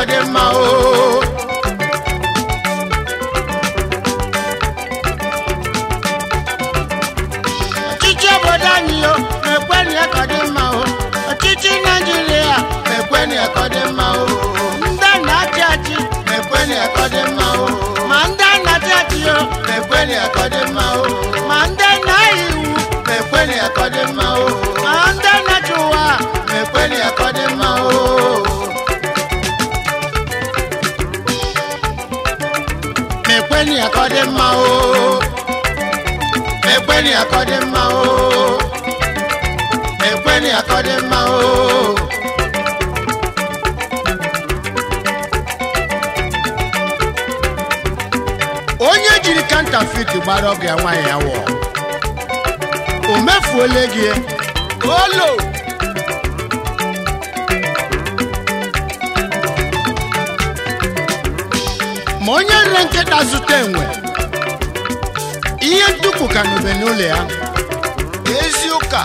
Echichi oh. obodo anyị o mekwenụ ya ka ọ dị mma o oh. ọchịchị naijiria mekwenụ ya ka ọ dị mma o oh. ndị na Ma achị ọ dị ma ndị na o mekwenụ ya ka ọ dị ma ndị iwu mekwenụ ya ka ọ dị mekweni akọ dị mma o mekweni akọ dị mma o mekweni akọ dị mma o onye jiri kanta fit gbara ọgụ ya nwaanyị ya wụọ o mefuola gị olo ma onye nre nkịta zụta enwe ihe ntukwu ka n'ube n'ụlọ ya ezi ụka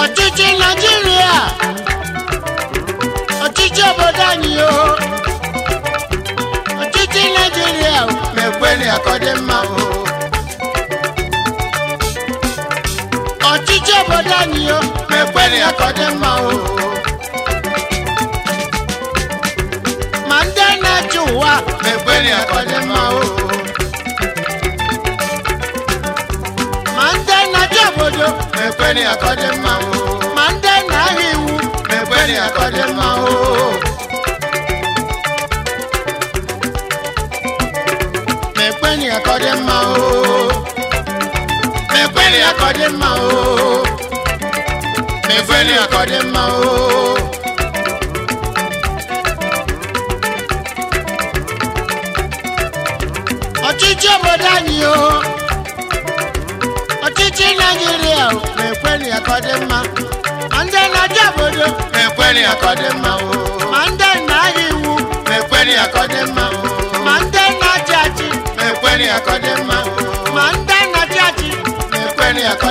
ọchịchị naijiria ọchịchị obodo anyị o ọchịchị naijiria mekweli akọdị mma o ọchịchị obodo anyị o mekweli akọdị mma o na-achị ụwa ma ekweri akọdị mma ooo. ma ndị na-achị obodo ma akọdị mma ooo. ma ndị na-ahịa iwu ma akọdị mma ooo. ma ekweri akọdị mma ooo. ma ekweri akọdị mma ooo. ma ekweri akọdị mma ooo. ya ma ndị na-aja obodo ma ya ka ma ndị na iwu ma ya ka ma ndị na-achị achị ma ekwere ya ka ma ndị na-achị achị ma ya ka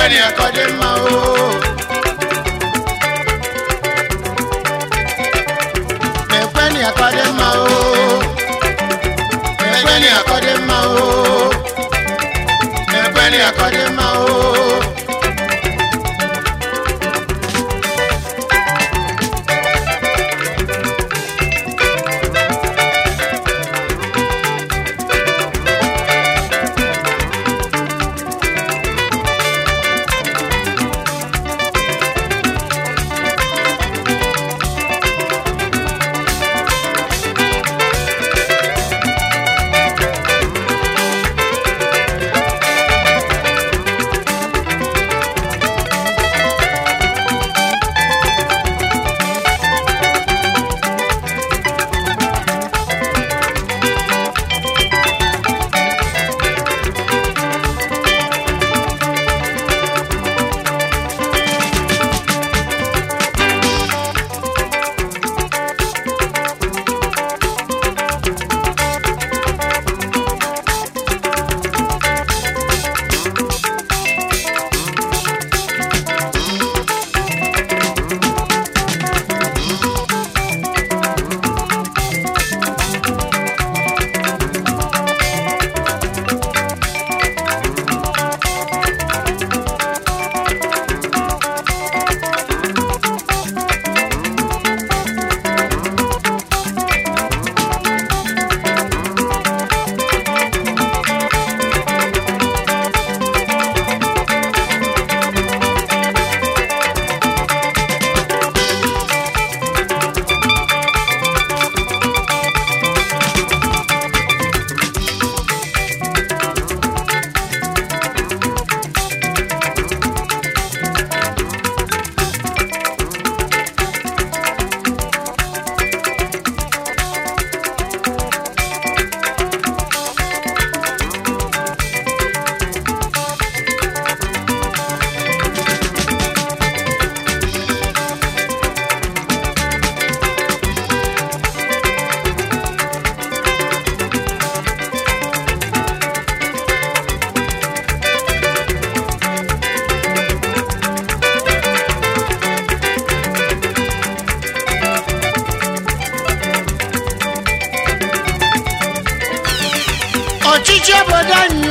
ready ọchịchị obodo anyị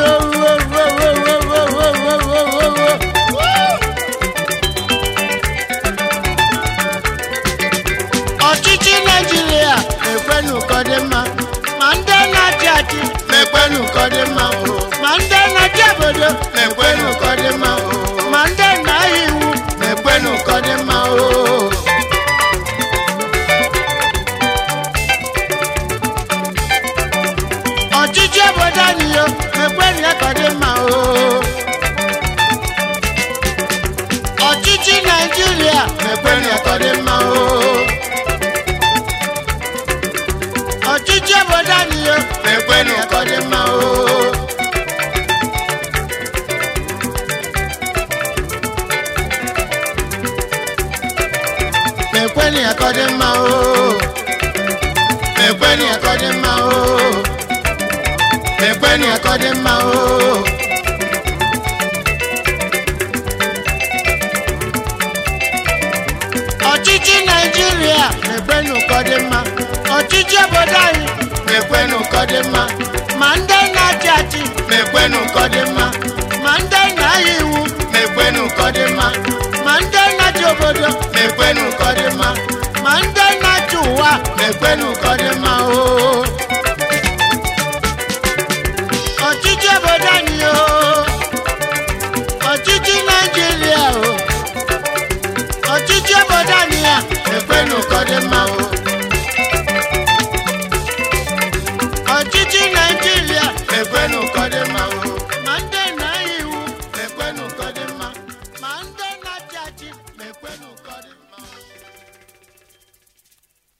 ọchịchị naijiria ekwenụ ka ọ dị mma mma mma ọchịchị naijiria mekweni ụkọdị mma ọchịchị obodo anyị ma ndị na-achị achị mekweni ọ dị